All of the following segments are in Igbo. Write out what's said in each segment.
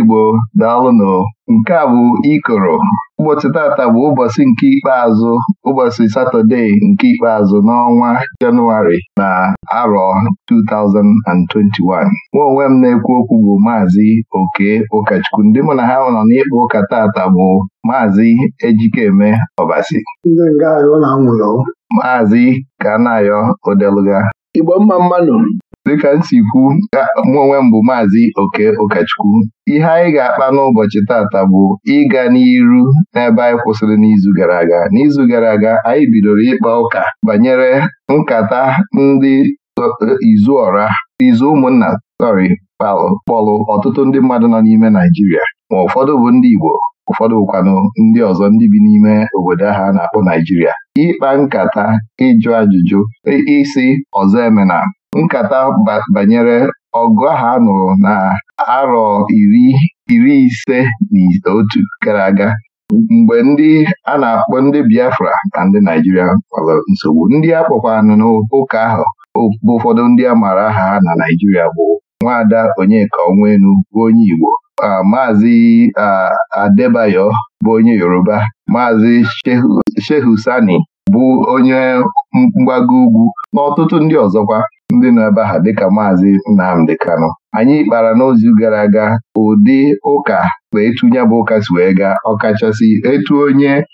igbo nụ nke a bụ ikoro ụbọchị tata bụ ụbọchị nke ikpeazụ ụbọchị satọde nke ikpeazụ n'ọnwa Jenụwarị na arọ 2021 nwa onwe m na-ekwu okwu bụ maazị Oke Ụkọchukwu ndị mụ na ha nọ n'ịkpa ụka taata bụ maazị Ejikeme Ọbasi maazị Kanayo Odeluga Igbo mma mmanụ dịka m si kwu onwe m bụ maazị oke ụkọchukwu ihe anyị ga-akpa n'ụbọchị tata bụ ịga n'iru n'ebe anyị kwụsịrị n'izu gara aga n'izu gara aga anyị bidoro ịkpa ụka banyere nkata ndị izuọra izu ụmụnna sọrị kpọlụ ọtụtụ ndị mmadụ nọ n'ime Naijiria ma ụfọdụ bụ ndị Igbo ụfọdụ bụkwanụ ndị ọzọ ndị bi n'ime obodo ha na-akpọ Naijiria ịkpa nkata ịjụ ajụjụ isi ọzọ emena nkata banyere ọgụ ahụ a nụrụ na arọ iri ise na otu gara aga mgbe ndị a na-akpọ ndị Biafra na ndị Naijiria nwere nsogbu ndị a kpọkwanụ n'ụka ahụ bụ ụfọdụ ndị a maara aha ha na Naijiria bụ nwaada Onyeka Onwenu bụ onye Igbo maazị Adebayo bụ onye Yoruba maazị Shehusani bụ onye mgbago ugwu n'ọtụtụ ndị ọzọkwa ndị nọ ebe ha dịka maazị Nnamdi Kanu anyị kpara n'ozu gara aga ụdị ụka wee bụ ụka si wee gaa ọkachasị etu eh,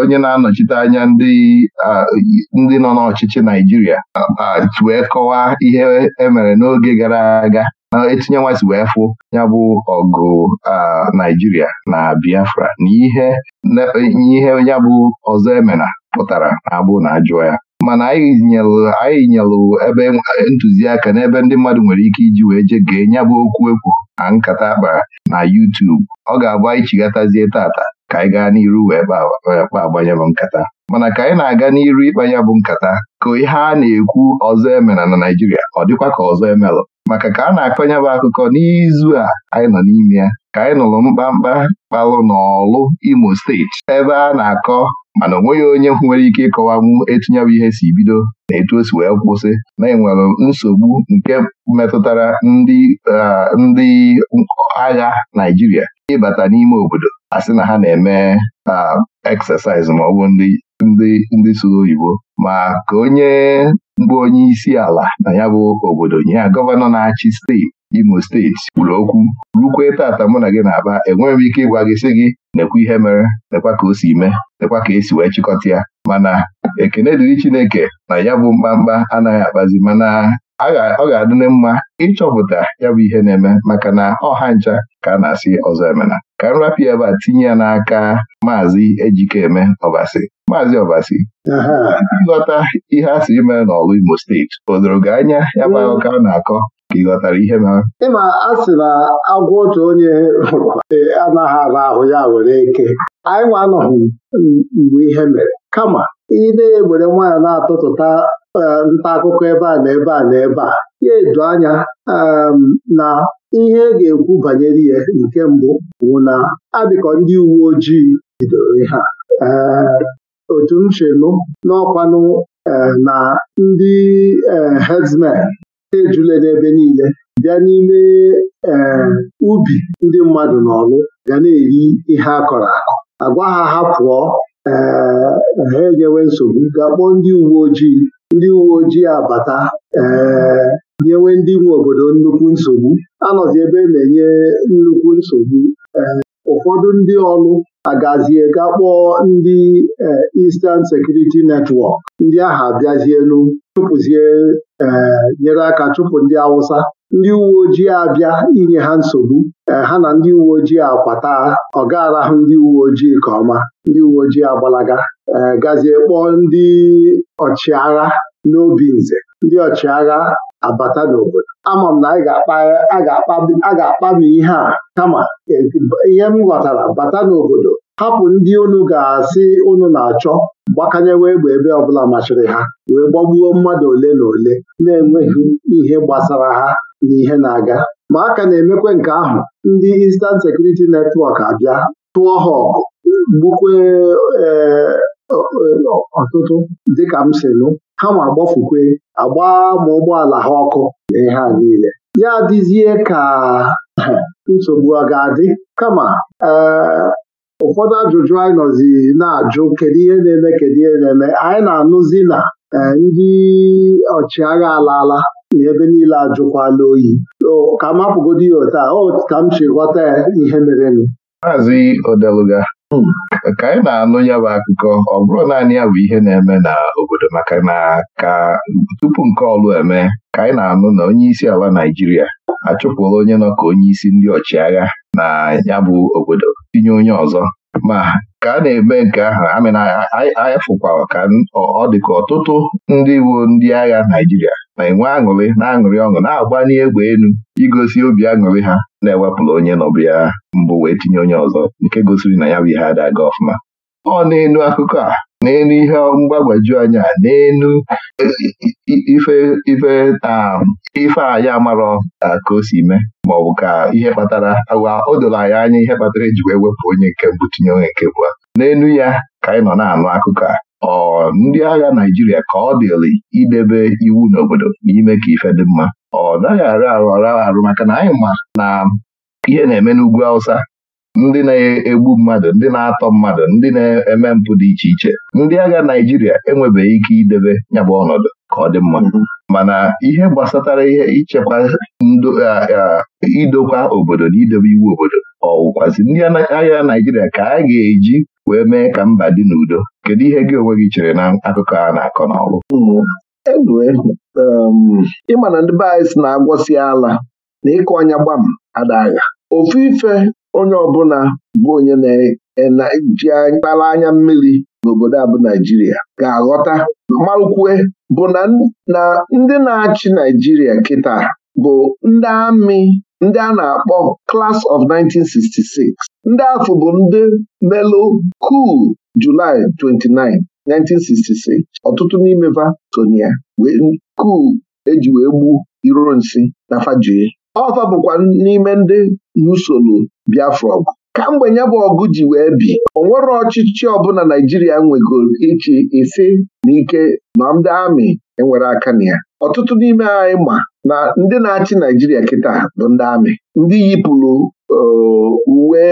onye na-anọchite anya ndị eh, nọ n'ọchịchị Naijiria eh, wee kọwaa ihe emere n'oge gara aga na etinyenwa si wee fụ ya bụ ọgụ Naijiria na Biafra na ihe ya bụ ọzọ emena pụtara na-abụ na ajụọ ya mana anyị nyelụ ebe ntụziaka n'ebe ndị mmadụ nwere ike iji wee jee gee nya bụ okwu ekwu na nkata kpara na YouTube ọ ga-abụ anyị chighatazie tata ka anyị gaa n'iru wee kpa agbanye nkata mana ka anyị na-aga n'iru ịkpa ya bụ nkata ka ihe a na-ekwu ọzọ emela na Naịjirịa ọ dịkwa ka ọzọ emelụ maka ka a na-akọnye bụ akụkọ n'izu a anyị nọ n'ime ya ka anyị nụrụ mkpamkpa kpalụ n'ọlụ Imo steeti ebe a na-akọ mana onweghị onye nwere ike ịkọwanwu etinyebụ ihe si bido na etu o si wee kwụsị na-enwere nsogbu nke metụtara ndị ndị agha Naijiria ịbata n'ime obodo a na ha na-eme eksesaịz ma ọ bụ ndị ndị ndị oyibo ma ka onye mgbe onye isi ala na ya bụ obodo nye ya gọvanọ na-achị steeti Imo steeti kwuru okwu rukwee tata mụ na gị na aba enweghị m ike ịgwa gị sị gị nekwa ihe mere nekwa ka o si mee nekwa ka esi wee chịkọta ya mana ekene dịrị Chineke na ya bụ mkpamkpa anaghị akpazi mana ọ ga-adị mma ịchọpụta ya bụ ihe na-eme maka na ọha ncha ka a na-asị ọzọ emena ka m rapịa ebe a tinye ya n'aka maazị Ejikeme Ọbasi maazị Ọbasi ịghọta ihe a sịrị mere n'ọlụ Imo steeti o doro gị anya ya bụ akụkọ a na-akọ ka ị ghọtara ihe mere ịma a sị na agwọ otu onye e, anaghị ala ahụ ya were eke anyị nwa anọghị mgbe ihe mere kama ị na nwaanyị na-atụtụta e, nta akụkọ ebe a na ebe a na ebe a ya edo anya na ihe a e ga-ekwu banyere ihe nke mbụ bụ na adịkọ ndị uwe ojii bidoro ihe a otu m chenụ n'ọkwanụ na ndị herdsmen ejule n'ebe niile bịa n'ime ubi ndị mmadụ n'ọlụ ga na-eri ihe akọrọ kọrọ akọ agwa ha ha pụọ ha enyewe nsogbu ga-akpọ ndị uwe ojii ndị uwe ojii abata nyewe ndị nwe obodo nnukwu nsogbu anọzi ebe na-enye nnukwu nsogbu eh, ụfọdụ ndị ọrụ agazie ga kpọọ ndị eh, Eastern Security Network ndị ahụ abịazienu chụpụzie eh, nyere aka chụpụ ndị Awụsa ndị uwe ojii abịa inye ha nsogbu eh, ha na ndị uwe ojii akwata ọ arahụ ndị uwe ojii nke ọma ndị uwe ojii agbalaga eh, gazie kpọọ ndị ọchịagha n'obi nze ndị ọchịagha abata n'obodo ama m na a ga-akpami ihe a kama e, ihe m ghọtara bata n'obodo hapụ ndị unu ga-asị unu na-achọ gbakanyewe egbe ebe ọbụla machiri ha wee gbagbuo mmadụ ole na ole na-enweghị ihe gbasara ha na na-aga ma aka na-emekwa nke ahụ ndị Eastern Security Network abịa tụọ ha ọgụ eh, ọtụtụ dịka m si nụ ha ma agbafukwe agba ma ụgbọala ha ọkụ na ihe a niile ya adịzie ka nsogbu ọ ga-adị kama eh, ụfọdụ ajụjụ anyị nọzi na-ajụ kedu ihe na-eme kedu ihe na-eme anyị na-anụzi na eh, ndị ọchịagha alaala na ebe niile ajụkwala oyi ka mapụgodo ya taa o ka m chi ghọta ya ihe m. maazị odeluga hmm. ka anyị na-anụ ya bụ akụkọ ọ bụrụ naanị ya bụ ihe na-eme n'obodo maka na ka tupu nke ọlụ eme ka anyị na-anụ na onye isi ala Naijiria achụpụla onye nọ ka onye isi ndị ọchịagha na ya bụ obodo tinye onye ọzọ ma ka a na-eme nke ahụ anyị fụkwara ka ọ dị ka ọtụtụ ndị iwu ndị agha Naijiria ma ị aṅụrị na-aṅụrị ọṅụ na-agbanye egbe elu igosi obi aṅụrị ha na-ewepụrụ onye nọbụ ya mbụ wee tinye onye ọzọ nke gosiri na ya bụ ihe ada aga ọfụma ọ na-enu akụkọ a na-enu ihe mgbagwaju anya na-enu ife ife um, anyị amarọ ka o si mee ma ọ bụ ka ihe kpatara agwa o doro anyị anya ihe kpatara eji wee wepụ onye nke mbụ tinye onye nke bụ n'elu ya ka anyị nọ na-anụ akụkọ a ọ ndị agha Naijiria ka ọ dịrị idebe iwu n'obodo n'ime ka ife dị mma ọ naghị arụ arụ ọrụ arụ maka na anyị ma na ihe na-eme n'ugwu Hausa ndị na-egbu mmadụ ndị na-atọ mmadụ ndị na-eme mpụ dị iche iche ndị agha Naijiria enwebeghị ike idebe nyabụ ọnọdụ ka ọ dị mma mm-hmm. mana ihe gbasatara ihe ichekwa idokwa obodo na idebe iwu obodo ọwụkwazi ndị agha Naijiria ka a ga-eji wee mee ka mba dị n'udo kedu ihe gị onwe gị chere na akụkọ a na-akọ n'ọrụ um, ịma na ndị be si na-agwọsi ala na ịkụ ọnya gbam adagha ofu ife onye ọbụla bụ onye na-eji e, mkpara anya mmiri n'obodo abụ Naijiria ga-aghọta malụkwue bụ na ndị na-achị Naijiria kịta bụ ndị amị ndị a na-akpọ Class of 1966 ndị afọ bụ ndị Melo kuu Julaị 29 1966 ọtụtụ n'ime va sonia wee kuu eji wee gbu nsị na fajie ọfa bụkwa n'ime ndị nusoro Biafra ka mgbe ya bụ ọgụ ji wee bi o nwere ọchịchị ọbụla Naijiria nwegoro ichi isi na ike ma ndị amị enwere aka na ya ọtụtụ n'ime anyị ma na ndị na-achị Naijiria kịta bụ ndị amị ndị yipụrụ uwe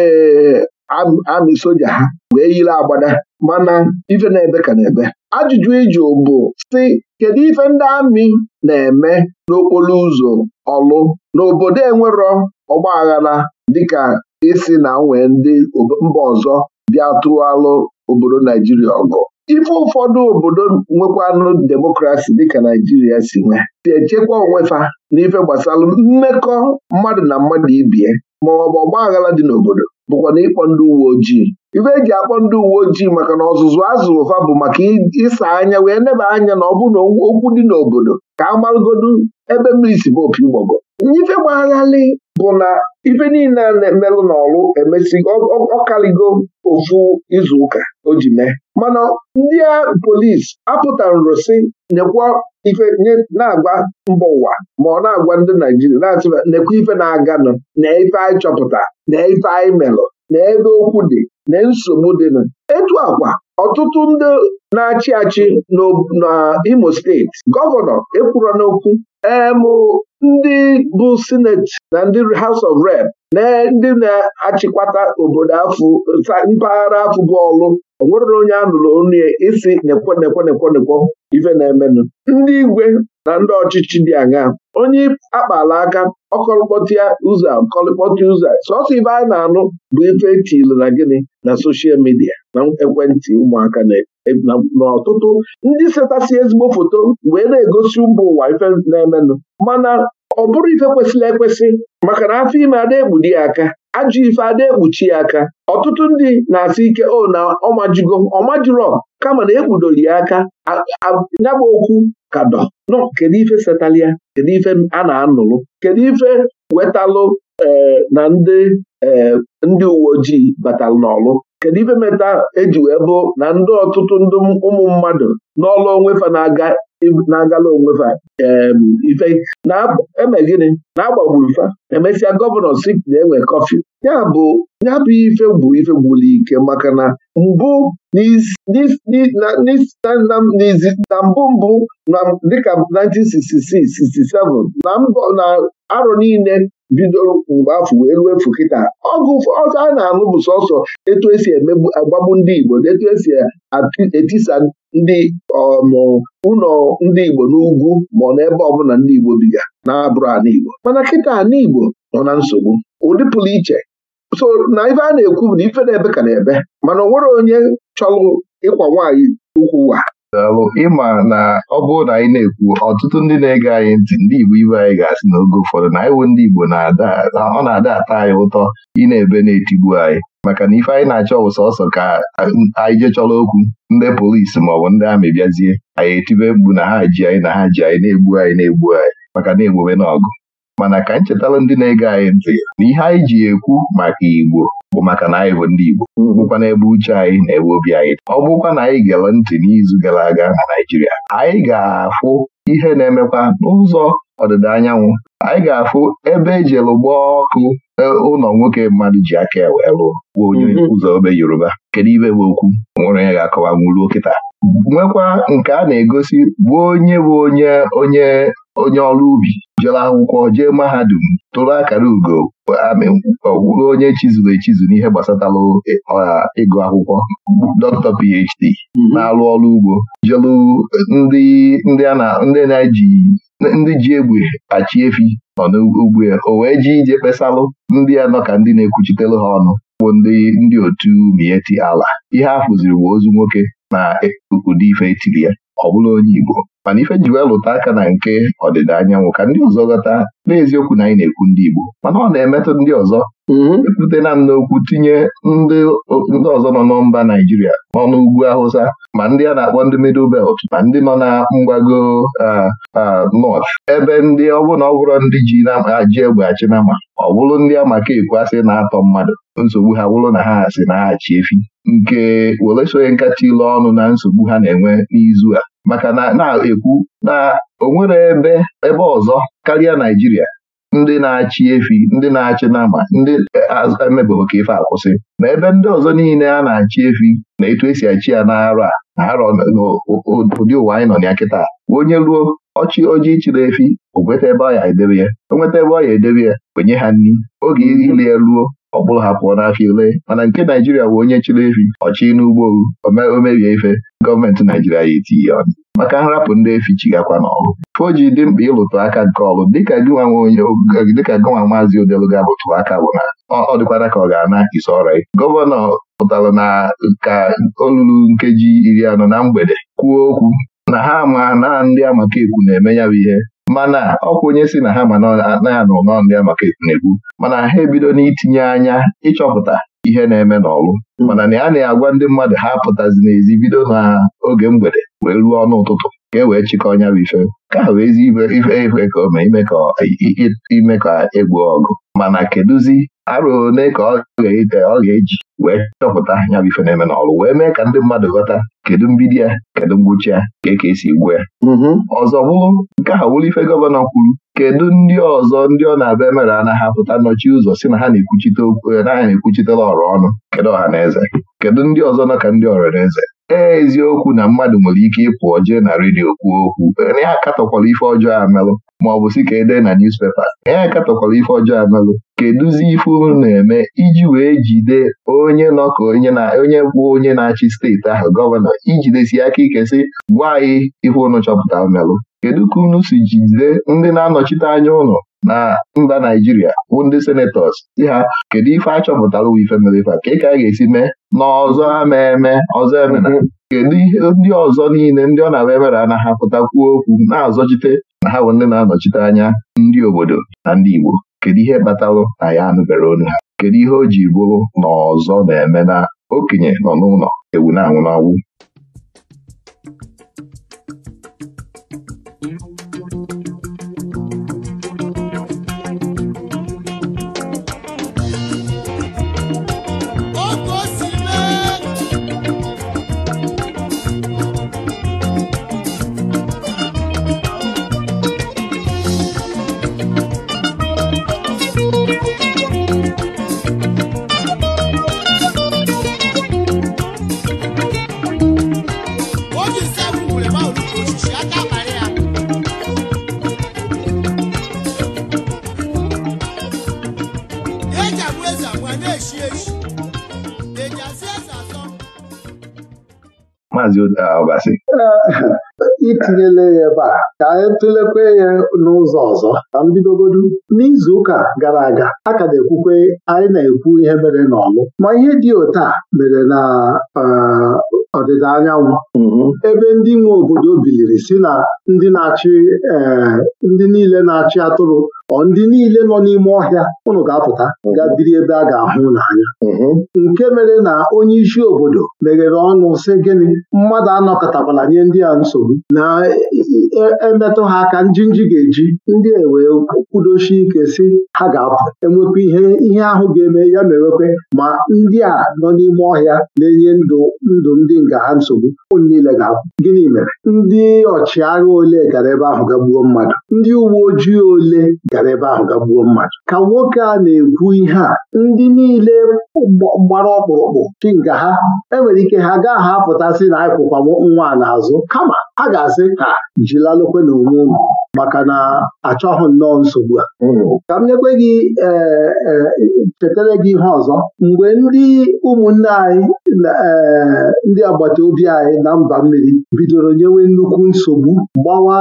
amị soja ha wee yiri agbada mana ife na-ebe ka na-ebe ajụjụ ịjụ bụ si kedu ife ndị amị na-eme n'okporo ụzọ ọlụ n'obodo enwero ọgba aghara dịka isi na nwee ndị mba ọzọ bịa tụalụ obodo Naijiria ọgụ ife ụfọdụ obodo nwekwanụ demokrasi dịka Naijiria si nwe si echekwa onwefa n'ife gbasara mmekọ mmadụ na mmadụ ibie maọbụ ọgba aghara dị n'obodo bụkwa na ịkpọ ndị uwe ojii ife eji akpọ ndị uwe ojii maka na ọzụzụ azụrụ fa bụ maka ịsa anya wee neba anya na ọ bụ na okwu dị n'obodo ka a ebe mmiri si bụ opi ụgbọgọ ife gbagharị bụ na ife niile a na-emelụ n'ọlụ emesi ọkaligo ofu izu ụka o ji mee mana ndị polis apụtara nrosi nyekwa ife na agba mba ụwa ma ọ na-agwa ndị Naijiria na-atụba nekwa ife na-aganụ na ife anyị chọpụta na ife anyị melụ na ebe okwu dị na nsogbu dịnụ etu akwa ọtụtụ ndị na-achị achị n'imo steeti gọvanọ ekwuru n'okwu em ndị bụ sineti na ndị House of Rep na ndị na-achịkwata obodo afụ mpaghara afụ bọọlụ onwerere onye a nụrụ isi nekwo nekwo nekwo nekwo ife na-emenụ ndị igwe na ndị ọchịchị dị aṅaa onye akpala aka ọkọlịkpọtịa ụzọ ọkọlịkpọtịa ụzọ sọsọ ibe a na-anụ bụ ife etilu na gịnị na soshal midia na ekwentị ụmụaka n'ọtụtụ e, ndị setasị ezigbo foto wee na-egosi ụba ụwa ife na-emenụ mana ọ bụrụ ife kwesịrị ekwesị maka na afọ ime adịghị ekpudi ya aka ajụ ife ada ekpuchi ya aka ọtụtụ ndị na-asị ike o oh, na ọmajigo ọmajiro kama na ekpudori ya aka nyabụ okwu kadọ nọ kedu ife setalia kedu ife a na-anụrụ kedu ife wetalụ e, na ndị e, ndị uwe ojii batalụ n'ọlụ kedu ife meta eji wee bụ na ndị ọtụtụ ndị ụmụ mmadụ n'ọlụ onwe fa na-aga na-agala onwe fa ife na-eme gịnị na-agbagburu fa emesịa gọvanọ si na-enwe kọfị ya bụ ya bụ ife bụ ife gwụrụ ike maka na mbụ na mbụ mbụ dịka 1966 67 na arọ niile bido mgbe afọ wee ruo efu kịta ọgụ ọzọ a na-anụ bụ sọsọ etu esi agbagbu ndị Igbo na etu esi etisa ndị um, ụlọ ndị Igbo n'ugwu ma ọ n'ebe ọbụla ndị Igbo biga na-abụrụ a n'Igbo mana kịta nigbo nọ na nsogbu ụdị pụrụ iche so na ife a na-ekwu bụ na ife na-ebe ka na-ebe mana o nwere onye chọrọ ịkwa nwaanyị ukwu ụwa daalụ ịma na ọ bụrụ na anyị na-ekwu ọtụtụ ndị na-ege anyị ntị ndị Igbo ibe anyị ga-asị n'oge ụfọdụ na anyị ndị Igbo na-ada ọ na-ada ata anyị ụtọ ị na-ebe na-etigbu anyị maka na ife anyị na-achọ bụ sọsọ ka anyị jechọrọ okwu ndị polisi maọbụ ndị amị bịazie anyị etibe mgbu na ha ji anyị na ha ji anyị na-egbu anyị na-egbu anyị maka na-egbube na ọgụ mana ka nchetara ndị na-ege anyị ntị na ihe anyị ji ekwu maka Igbo bụ maka na anyị bụ ndị Igbo bụkwa n'ebe uche anyị na ebe obi anyị ọ bụkwa na anyị gere ntị n'izu gara aga na Naịjirịa anyị ga-afụ ihe na-emekwa n'ụzọ ọdịda anyanwụ anyị ga-afụ ebe ejere gbaa ọkụ e, ụlọ nwoke mmadụ ji aka ewe bụ onye mhm. ụzọ obe Yoruba kedu ibe bụ okwu nwere onye ga-akọwa nwụruo kịta nwekwa nke a na-egosi bụ onye bụ onye onye onye ọrụ ubi jere akwụkwọ jee mahadum tụrụ akara ugo amị wụrụ onye chizuru echizu n'ihe gbasatara ọha ịgụ akwụkwọ dọkịta PhD mm-hmm. na-arụ ọrụ ugbo jelu ndị ji egbe achị efi nọ n'ugbo ya o wee ji ije kpesalụ ndị ya nọ ka ndị na-ekwuchitere ha ọnụ bụ ndị otu mieti ala ihe a fụziri bụ ozu nwoke na-ahị e ụdị ife etiri ya ọ bụrụ onye Igbo mana ife ji wee lụta aka na nke ọdịda anyanwụ ka ndị ọzọ ghọta n'eziokwu na anyị na-ekwu ndị Igbo mana ọ na-emetụ ndị ọzọ mm-hmm. epute na m n'okwu tinye ndị ọzọ nọ na mba Naijiria n'ọnụ ugwu Hausa ma ndị a na-akpọ ndị Middle Belt ma ndị nọ na mgbago North ebe ndị ọbụla ọ bụrụ ndị ji ji egbe achị na ma ọ bụrụ ndị amaka ekwu asị na-atọ mmadụ nsogbu ha bụrụ na ha asị na ha achị efi nke were sonye nkata ilu ọnụ na nsogbu ha na-enwe n'izu a maka na na-ekwu na o nwere ebe ebe ọzọ karịa Naijiria ndị na-achị efi ndị na-achị nama ndị emebeghị ka ife akwụsị ma ebe ndị ọzọ niile a na-achị efi na etu esi achị ya n'arọ a na arọ n'ụdị ụwa anyị nọ na ya kịta onye ruo ọchị ojii chịrị efi o nweta ebe ọ ya edebe ya o nweta ebe ọ ya edebe ya kwenye ha nri oge ile ya ruo ọkpụrụ ha pụọ n'afịa ule mana nke Naijiria bụ onye chiri efi ọchị n'ugbo o mebie ife gọọmenti Naijiria ya etinye ọnụ maka nrapụ ndị efi chigakwa n'ọrụ foji dị mkpa ịlụtụ aka nke ọrụ dịka gịnwa onye dịka gịnwa maazị Odeluga lụtụ aka bụ na ọ dịkwara ka ọ ga-ana isi ọra gọvanọ pụtara na ka olulu nkeji iri anọ na mgbede kwuo okwu na ha ma na ndị amaka ekwu na-eme ya bụ ihe mana ọkwa onye si na ha ma na-anụ n'ọndịa maka ekpumekpu mana ha ebido n'itinye anya ịchọpụta ihe na-eme n'ọlụ mana na ya na-agwa ndị mmadụ ha apụtazi n'ezi bido n'oge mgbede wee ruo ọnụ ụtụtụ ka e wee chịkọ ọnya bụ ife ka ahụ ezi ife ife ka ome ime ka egbuo e ọgụ mana kedụzi arụ one ka ọ ga-eji wee chọpụta ya bụ ife na-eme n'ọrụ wee mee ka ndị mmadụ ghọta kedu mbido ya kedu ngwụcha ya ka e ka esi egbu ya mm-hmm. ọzọ bụrụ nke ahụ wụrụ ife gọvanọ kwuru kedu ndị ọzọ ndị ọ na-abịa emere anaghị apụta nnọchi ụzọ si na ha na-ekwuchite okwu eh, ha na ọrụ ọnụ kedu ọha na eze kedu ndị ọzọ nọ ka ndị ọrụ na eze ee eziokwu na mmadụ nwere ike ịpụ jee na redio kwuo okwu ya akatọkwala ife ọjọọ amelụ maọbụ si ka ede na niuspepa ya akatọkwala ife ọjọọ amelụ kedụzi ife unu na-eme iji wee jide onye nọ ka onye bụ onye na-achị steeti ahụ gọvanọ ijidesi aka ike si gwa anyị ife unu chọpụta melụ kedu ka unu si jide ndị na-anọchite anya ụlọ na mba Naijiria bụ ndị senetọs si ha kedu ife a chọpụtara ife mere ife a ka ị ka a ga-esi mee na ọzọ ama eme ọzọ emena kedu ihe ndị ọzọ niile ndị ọ na-abịa emere a na-ahapụta okwu na-azọchite na ha bụ ndị na-anọchite anya ndị obodo na ndị Igbo kedu ihe kpatarụ na ya anụbere onu ha kedu ihe o ji bụrụ na ọzọ na-eme na okenye nọ n'ụlọ ewu na-anwụ Ọbasi itinyela ya ebe a ka anyị tụlekwe ya n'ụzọ ọzọ ka m bidogodu n'izu ụka gara aga a ka na-ekwukwe anyị na-ekwu ihe mere n'ọlụ ma ihe dị otu a mere na eh, ọdịda anyanwụ mm-hmm. ebe ndị nwe obodo biliri si na ndị na-achị eh, ndị niile na-achị atụrụ ọ ndị niile nọ n'ime ọhịa ụnụ ga-apụta ga biri ebe a ga-ahụ n'anya mhm. nke mere na onye isi obodo meghere ọnụ sị gịnị mmadụ anọkọtakwala nye ndị a nsogbu na e, e, emetụ ha aka njinji ga-eji ndị a e wee kwudochie ike si ha ga-apụ enwekwa ihe ihe ahụ ga-eme ya mewekwe ma ndị a nọ n'ime ọhịa na-enye ndụ ndụ ndị nga ha nsogbu ụnụ niile ga-apụ gịnị mere ndị ọchịagha ole gara ebe ahụ ga gbuo mmadụ ndị uwe ojii ole gara ebe ahụ ga gbuo mmadụ ka nwoke a na-ekwu ihe a ndị niile gbara ọkpụrụkpụ chi nga ha enwere ike ha gaa ha na akwụkwa nwa n'azụ kama ha ga-asị ka jilalụkwe na onwe unu maka na achọghị nnọọ nsogbu a hmm. ka m nyekwe gị e, e, chetara gị ihe ọzọ mgbe ndị ụmụnne anyị e, ndị agbata obi anyị na mba mmiri bidoro nyewe nnukwu nsogbu gbawa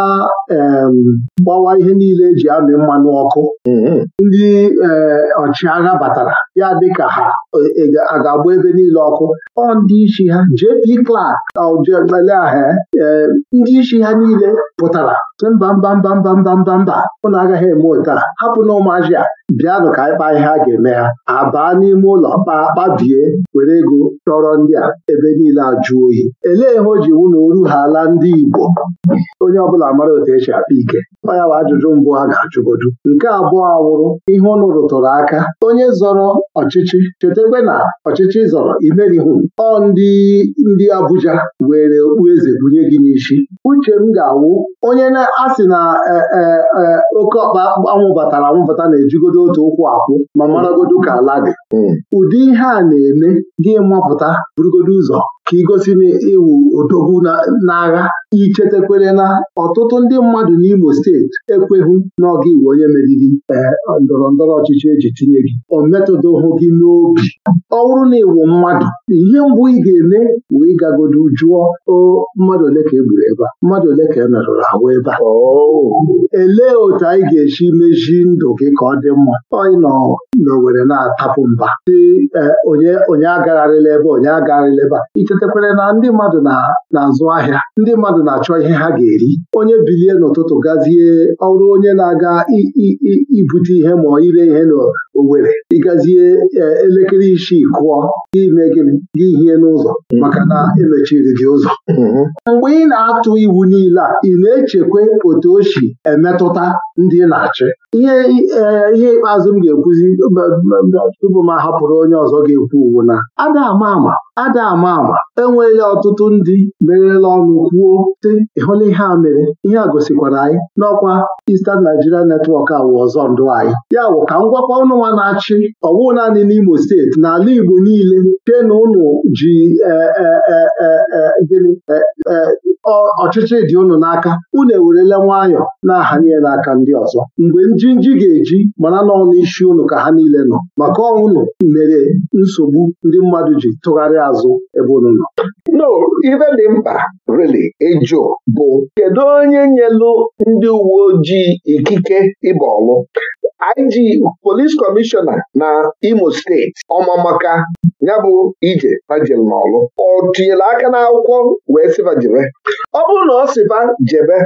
gbawa ihe niile eji amị mmanụ ọkụ mm-hmm. ndị eh, ọchịagha batara ya dịka ha a ga-agba ebe niile ọkụ ọ ndị isi ha JP Clark aujeleaha e, ndị isi ha niile pụtara sị mba mba mba mba mba mba mba ụnụ agaghị eme otu a hapụ na ụmụazị a bịanụ ka anyị kpaa ihe a ga-eme ha abaa n'ime ụlọ kpaa kpabie were ego chọrọ ndị a ebe niile ajụ oyi elee ihe o ji wụ na oru ha ala ndị Igbo onye ọbụla mara otu esi akpa ike ọ bụ ajụjụ mbụ ha ga-ajụgodu nke abụọ awụrụ ihe ụnụ rụtụrụ aka onye zọrọ ọchịchị cheta chekwe na ọchịchị zọrọ imerihu ọ ndị ndị Abuja were okpueze bunye gị n'isi uche m ga-awụ onye na-asị na e, e, e, oke ọkpa anwụbatara batara anwụbata na-ejigodo otu ụkwụ akwụ ma maragodo ka ala dị hmm. ụdị ihe a na-eme gị mapụta burugodo ụzọ ka igosi na ịwụ odogwu n'agha ichetekwere na ọtụtụ ndị mmadụ n'Imo steeti ekweghị n'ọga iwu onye meriri eh, ndọrọ ndọrọ ọchịchị eji tinye gị o metụdohụ gị n'obi ọ bụrụ na ịwụ mmadụ ihe mbụ ị ga-eme wee ịgagodo jụọ mmadụ ole ka e ebe a mmadụ ole ka e merụrụ ahụ ebe a oh. elee otu anyị ga-esi mezi ndụ gị ka ọ dị mma Onye nọ n'Owere na-atapụ mba eh, onye agagharịla ebe onye agagharịla ebe a sitekwere na ndị mmadụ na-azụ ahịa ndị mmadụ na-achọ ihe ha ga-eri onye bilie n'ụtụtụ gazie ọrụ onye na-aga ibute ihe ma ire ihe n'owere ịgazie e, elekere isii kụọ ime gịnị gị hie n'ụzọ mm-hmm. maka na emechiri gị ụzọ mm-hmm. mgbe ị na-atụ iwu niile a ị na-echekwa otu o si emetụta ndị na-achị ihe e, ihe ikpeazụ m ga-ekwuzi tupu m ahapụrụ onye ọzọ ga-ekwu uwu na ada ama ama ada ama ama enweghị ọtụtụ ndị merela ọnụ kwuo sị ịhụla ihe a mere ihe a gosikwara anyị n'ọkwa Eastern Nigeria netwọk awụ ọzọ ndụ anyị ya bụ ka ngwakwa ọnụnwa na-achị ọwụ naanị n'Imo steeti n'ala Igbo niile chee na ụnụ ji e, e, e, gịnị ọchịchị dị ụnụ n'aka unu ewerele nwayọọ na-ahanye n'aka ndị ọzọ mgbe njinji ga-eji mana n'ọnụ isi ụnụ ka ha niile nọ maka ọnwụnụ mere nsogbu ndị mmadụ ji tụgharị azụ ebe ụnụ ụlọ no ife dị mkpa rili ịjụ bụ kedu onye nyelu ndị uwe ojii ikike ịba ọlụ IG polis kọmishọna na Imo steeti ọmamaka ya bụ ije fajel n'ọlụ ọ tinyere aka n'akwụkwọ wee sịba jebe ọ bụrụ na ọ sịba jebe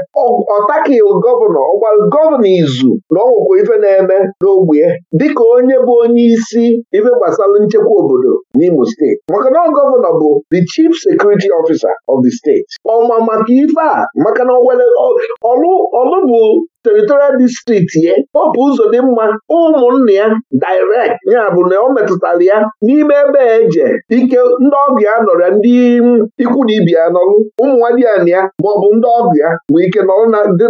ọtakighị gọvanọ ọgwara gọvanọ izu na ọnwụkwọ ife na-eme n'ogbe dịka onye bụ onye isi ife gbasara nchekwa obodo n'Imo steeti maka na gọvanọ bụ the chief security officer of the steeti ọma maka ife a maka na ọlụ bụ teritorial distrikti ya bụ ụzọ dị mma ụmụnne ya direct ya bụ na ọ metụtara ya n'ime ebe eje ike ndị ọgụ ya nọrọ ya ndị ikwu na ibi ya nọrụ ụmụnwadị ya na ya maọbụ ndị ọgụ ya nwee ike nọrọ dị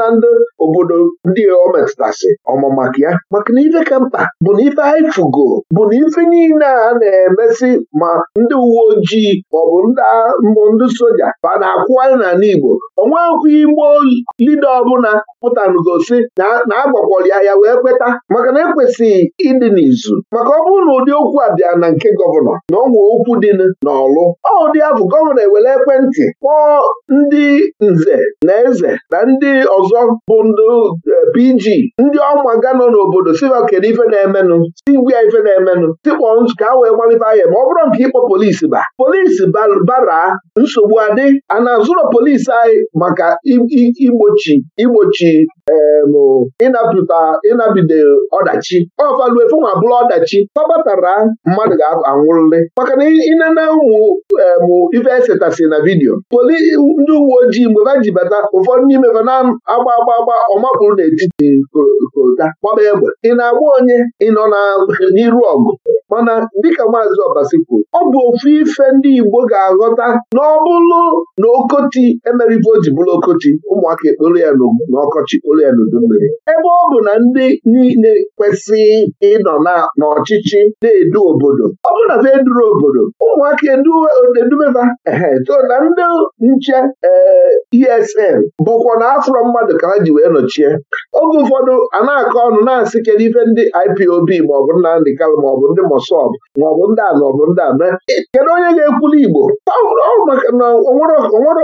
na ndị obodo ndị ọ metụtasị ọma ya maka na ife ka mkpa bụ na ife haịfugo bụ na ife niile a na-emesi ma ndị uwe ojii maọbụ mbụ ndị soja ba na-akwụwanye n'ala Igbo onwe akwụghị Igbo lido ọbụla pụtanụgosi na agbakwọrọ ya ya wee kweta maka na ekwesịghị ịdị n'izu maka ọ bụrụ na ụdị okwu a bịa na nke gọvanọ na ọnwa okwu dị n'ọlụ ọ ụdị abụ gọvanọ ewere ekwentị kpọọ ndị nze na eze na ndị ọzọ bụ e, ndị PG ndị ọmaga nọ n'obodo si kedu ife na-emenụ si gwa ife na-emenụ tikpọ ka a wee gbalịba ya ma ọ bụrụ nke ịkpọ polisi ba polisi bara nsogbu adị a na-azụrọ polisi anyị maka igbochi igbochi ji um, ịnapụta ọdachi ọfaluefu nwa bụrụ ọdachi kpọbatara mmadụ ga-anwụrịrị maka na ịnene ụmụ um, ife esetasi na vidiyo poli ndị uwe ojii mgbe ha ji bata ụfọdụ n'ime fa na-agba agba agba ọmapụrụ n'etiti kolta gbaba egbe ị na-agba onye ị nọ n'iru ọgụ mana dịka maazị ọbasi kwuru ọ bụ ofu ife ndị Igbo ga-aghọta na ọ na okoti emerife o ji bụrụ okoti ụmụaka ekporo ya n'ọkọ ọchị ebe ọ bụ na ndị niile kwesịghị ịnọ n'ọchịchị na-edu obodo ọ bụrụ na ha eduru obodo ụmụaka edumeba so na ndị nche ESN eh, e bụkwa na afro mmadụ ka ha ji wee nọchie oge ụfọdụ a na-akọ ọnụ na-asị kedu ife ndị IPOB maọbụ Nnamdị Kalụ maọbụ ndị Mosọb maọbụ ndị a maọbụ ndị a e, kedu onye ga-ekwuli Igbo maka na onwere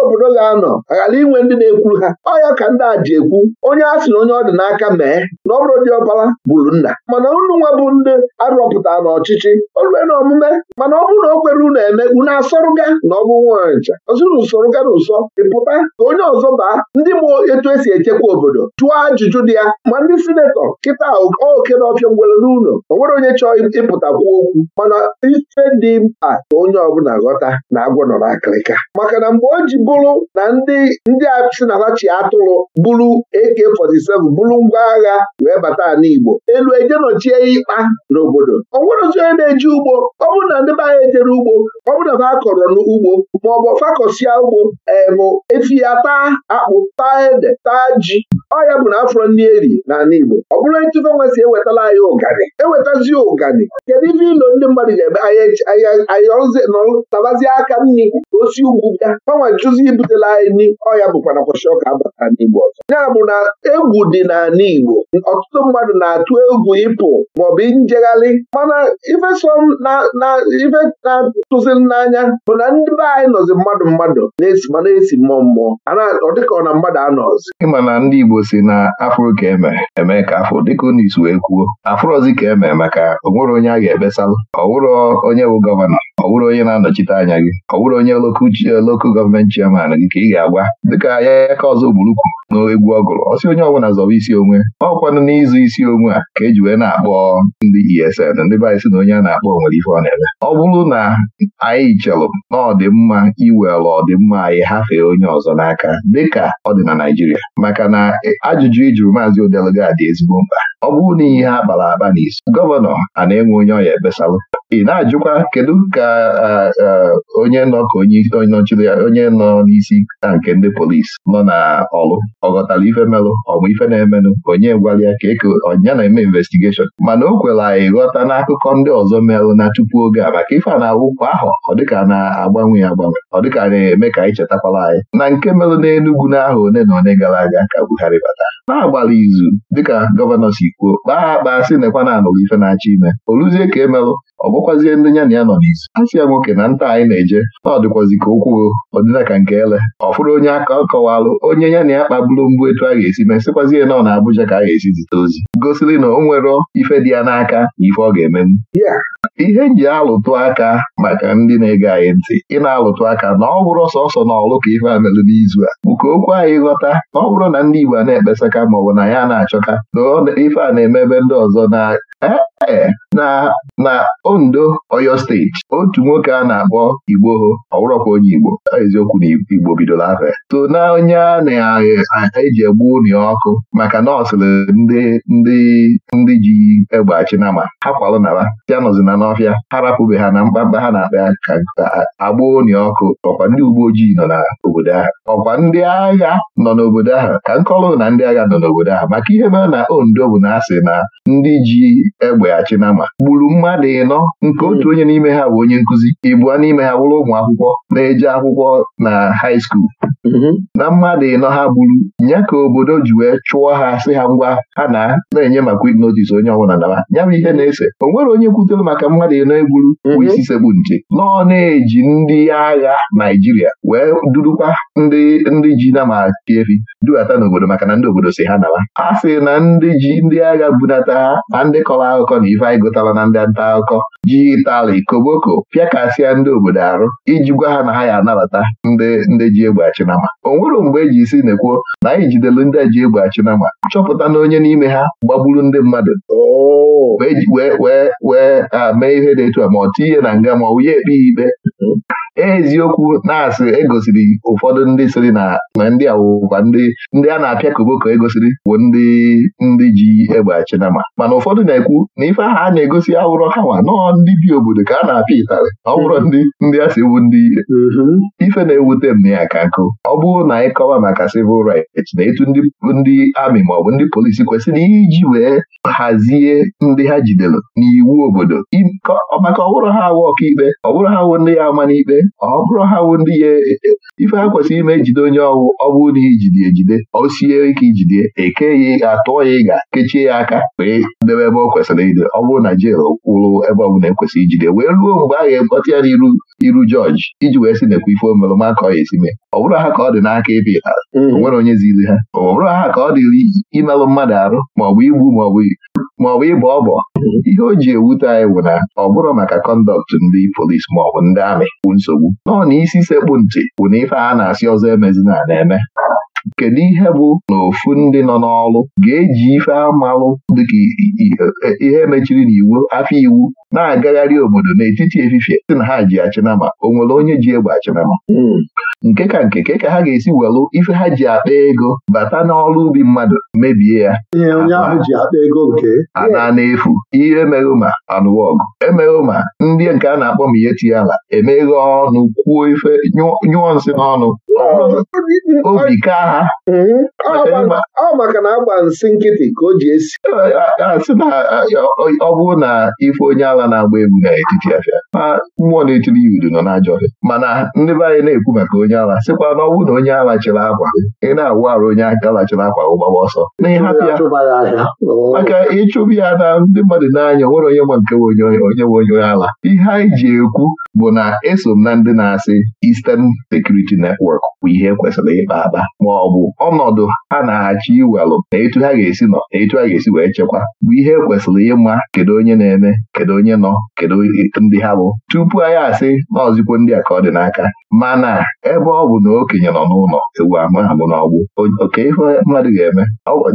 obodo ga-anọ aghara inwe ndị na ekwu ha ọ ya ka ndị a ji ekwu onye a sị na onye ọ dị n'aka mee na ọ bụrụ ọbara bụrụ nna mana unu nwa bụ ndị arụpụta n'ọchịchị olue na omume mana ọ bụrụ na o kwere unu eme unu na ọ bụ ncha ọzụrụ usoroga na ụsọ ịpụta ka onye ọzọ baa ndị mụ etu esi echekwa obodo chụọ ajụjụ dị ya ma ndị sinetọ kịta oke na ọfịa ngwere n'ụlọ o nwere onye chọọ ịpụta okwu mana ife dị mkpa ka onye ọbụla ghọta na agwọ nọ n'akịrịka maka na mgbe o ji bụrụ na ndị ndị a na ha chi atụrụ bụrụ AK47 bụrụ ngwa agha wee bata ala Igbo elu ejenochie ya ikpa n'obodo ọ nwerozi onye na-eji ugbo ọ bụrụ na ndị be anya ejere ugbo ọ bụrụ na akọrọ n'ugbo ma ọ bụ ugbo emụ efi taa akpụ taa ede taa ji ọ ya bụ na afọ ndị eri n'ala Igbo ọ bụrụ ntụfe nwa si ewetala anyị ụgani ewetazi ụgani kedu ife ilo ndị mmadụ ga-eme ayọtabazie aka nri osi ugwu bịa gbanwe jụzi ibutela anyị nri ọ ya bụkwa na kwashiọka abata n'Igbo ọzọ ya na egwu dị n'ala Igbo ọtụtụ mmadụ na-atụ egwu ịpụ maọbụ njegharị mana na ife na-atụziri n'anya bụ na ndị be anyị nọzi mmadụ mmadụ na-esi ma na-esi mmụọ mmụọ ọ dịka ọ na mmadụ anọzi ịma na ndị Igbo si na afụrụ ka eme eme ka afọ dịka unu isu wee kwuo afụrụzi ka eme maka onwere onye a ga-ebesalụ ọ onye bụ gọvanọ ọ bụrụ onye na-anọchite anya gị ọ bụrụ onye lokal gọọmenti chairman gị ka ị ga-agwa dịka ya ka ọzọ gburu kwuru n'egwu ọ gụrụ ọ sị onye ọbụla zọba isi onwe ọ ọkwanụ n'ịzụ isi onwe a ka eji wee na-akpọ ndị ESN ndị be anyị na onye a na-akpọ nwere ife ọ na-eme ọ bụrụ na anyị chelụ na ọdịmma iwere ọdịmma anyị hafee onye ọzọ n'aka dịka ọ dị na Naịjirịa maka na ajụjụ ijuru e maazị Odeluga dị ezigbo mkpa ọ bụrụ na ihe ha kpara akpa n'isi gọvanọ a na-enwe onye ọ ya ị na-ajụkwa kedu ka onye nọ ka onye nọchiri ya onye nọ n'isi na nke ndị polis nọ na ọlụ? ọ ghọtara ife melụ ọmụ ife na-emenụ onye gwara ya ka eke ọnya na-eme investigeshọn mana o kwere anyị ghọta n'akụkọ ndị ọzọ merụ na tupu oge a maka ife a na-awụ ahụ ọ dịka na-agbanwe agbanwe ọ dịka na-eme ka anyị chetakwala anyị na nke merụ n'Enugwu n'ahụ one na one gara aga ka Buhari bata na-agbara izu dịka gọvanọ si kwuo kpaa akpa sị nekwa na anụrụ ife na-achọ ime o ruzie ka emelụ ọ bụkwazie ndị ya na ya nọ n'isi a sị ya nwoke na nta anyị na-eje na ọ dịkwazi ka okwuo ọdịna ka nke ele ọ fụrụ onye aka ọ kọwalụ onye nya na ya kpagburu mbụ etu a ga-esi mesịkwazie na ọ na abụja ka a ga-esi zite ozi gosiri na o nwere ife dị ya n'aka na ife ọ ga-emenwu ihe nji alụtụ aka maka ndị na-ege anyị ntị ị na-alụtụ aka na ọ bụrụ sọsọ na ọlụ ka ife a n'izu a bụ ka okwu anyị ghọta na ọ bụrụ na ndị Igbo a na-ekpesaka maọbụ na ya na-achọka na ife a na ebe ndị ọzọ na ee eh, eh, na na Ondo Oyo steeti otu nwoke a na-akpọ igbo ọwụrọkwa onye Igbo eziokwu na Igbo bidoro afọ ya na onye a na-eji egbu ụnụ ọkụ maka na ndị ndị ndị ji egbe achị nama ha kwalụ nara ya nọzina n'ọfịa ha rapụbe ha na mkpamkpa ha na-akpa ya ka agba ụnụ ọkụ ọkwa ndị uwe ojii nọ n'obodo ahụ ọkwa ndị agha nọ n'obodo ahụ ka nkọlụ na ndị agha nọ n'obodo ahụ maka ihe mere na Ondo bụ na asị na ndị ji egbeghachi na gburu mmadụ ịnọ nke hmm. otu onye n'ime ha bụ onye nkụzi ibua n'ime ha wụrụ ụmụ akwụkwọ na-eje akwụkwọ na hai school mm-hmm. na mmadụ ịnọ ha gburu nya ka obodo ji wee chụọ ha sị ha ngwa ha na na-enye maka quit notice onye ọbụla naba ya bụ ihe na-ese o nwere onye kwutere maka mmadụ ịnọ egburu bụ mm-hmm. isi sekpu nche nọ na-eji ndị agha Naijiria wee durukwa ndị ndị ji na ma tiefi dubata n'obodo maka na ndị obodo si ha naba ha sị na ndị ji ndị agha bunata ha na ndị ka akọrọ akụkọ na ife anyị gotara na ndị nta akụkọ ji ịtala ikoboko pịakasịa ndị obodo arụ iji gwa ha na ha ya anabata ndị ndị ji egbe achịnama o nwere mgbe e ji isi na-ekwuo na anyị jidelu ndị ji egbe chinama chọpụta na onye n'ime ha gbagburu ndị mmadụ oh. wee wee wee mee ihe dị etu a ma ọ tinye na nga ma ọ wụnye ekpe ikpe eziokwu na-asị egosiri ụfọdụ ndị sịrị na ndị awụwa ndị a na-apịa koboko egosiri bụ ndị ndị ji egbe achinama mana ụfọdụ na-ekwu na ife ahụ a na-egosi awụrọ ha nọọ ndị bi obodo ka a na-apịa ịtarị ọ ndị ndị a si ewu ndị ife na-ewute m na ya ka nkụ ọ bụrụ na ịkọwa kọwa maka civil rights na etu ndị amị maọbụ ndị polisi kwesịrị iji wee hazie ndị ha jidere n'iwu obodo maka ọ ha awụ ọkaikpe ọ ha awụ ndị ya ama n'ikpe ọ bụrụ ha wụ ndị ya e, ife ha kwesịrị ime ejide onye ọwụ ọ bụrụ na ijide ejide o sie ike ijide eke ya e atụọ ya ịga kechie ya aka wee debe ebe ọ kwesịrị ide ọ bụrụ na jel kwụrụ ebe ọ bụla ekwesịrị ijide wee ruo mgbe a ga-ekpọta ya n'iru iru jọji iji wee sị nekwa ife omerụma ka ọ ya esi mee ọ bụrụ ha ka ọ dị n'aka ebe ịtara mm-hmm. o nwere onye ziri ha ọ bụrụ ha ka ọ dịrị imerụ mmadụ arụ maọbụ igbu maọbụ maọbụ ịbọ ọbọ mm-hmm. ihe o ji ewute anyị bụ na ọ bụrụ maka kọndọkt ndị polis maọbụ ndị ahụ na-amị nsogbu nọọ na isi sekpụ ntị bụ na ife a na-asị ọzọ emezina na-eme kedu ihe bụ na ofu ndị nọ n'ọrụ ga-eji ife amalụ dịka ihe mechiri n'iwu afọ iwu na-agagharị obodo n'etiti efifie sị na ha ji achịnama o nwere onye ji egbe achịnama hmm. nke ka nke ka ha ga-esi welụ ife ha ji akpa ego bata n'ọrụ ubi mmadụ mebie ya ana na-efu ihe mere ma anụwa ọgụ emere ma ndị nke a na-akpọ m ihe tinye ala emeghe ọnụ kwuo ife nyụọ nsị n'ọnụ hmm. obi hmm. ka ha ọ bụrụ na ife onye ala na-agba egwu n'etiti afịa ma mmụọ na-etiri ya udu nọ n'ajọ ọhịa mana ndị be anyị na-ekwu maka onye ala sịkwa na ọ na onye ala chịrị akwa ị na-awụ arụ onye aka lachiri akwa gbaba ọsọ na ịhapụ ya maka ịchụbi ya na ndị mmadụ n'anya nwere onye ma nke onye onye nwe onye ala ihe anyị ji ekwu bụ na eso m na ndị na-asị Eastern Security Network bụ ihe kwesịrị ịkpa aba. ma ọ bụ ọnọdụ ha na-achọ iwelụ na etu ha ga-esi nọ na etu ha ga-esi wee chekwa bụ ihe kwesịrị ịma kedu onye na-eme kedu onye onye nọ kedu ndị ha bụ tupu anyị asị na ndị a ka ọ dị n'aka mana ebe ọ bụ na okenye nọ n'ụlọ ewu ama abụ na ọgbụ oke ife mmadụ ga-eme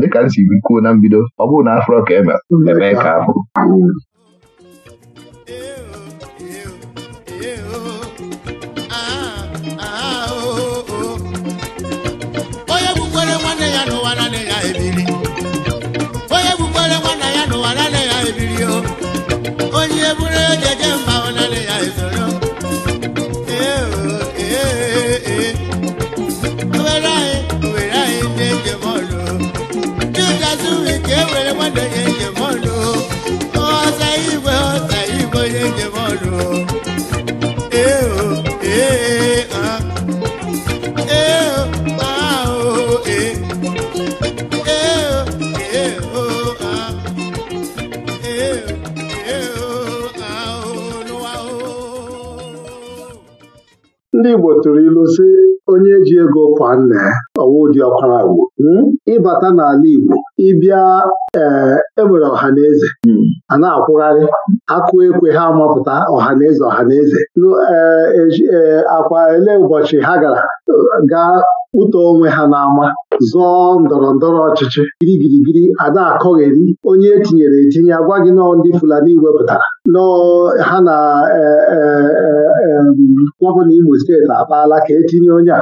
dịka m si kwuo na mbido ọ bụrụ na afro ka e eme ka afọ anyị eburu ejeje mba ụnanị ya esoro owere anyị owere anyị ndị njem ọrụ chukwu azụ ike ewere nwanne ya ndị Igbo tụrụ ilu si onye ji ego kwa nna ya ụdị ọkwara agwụ hmm, ịbata n'ala Igbo ịbịa ee eh, enwere ọhaneze hmm. a na-akwụgharị akụ ekwe ha mapụta ọhaneze ọhaneze ee eh, eh, akwa ele ụbọchị ha gara gaa ụtọ onwe ha n'ama zọọ ndọrọ ndọrọ ọchịchị girigirigiri ada akọgheri onye etinyere etinye agwa gị nọ ndị Fulani wepụtara nọọ ha na gọvanọ Imo steeti akpaala ka etinye onye a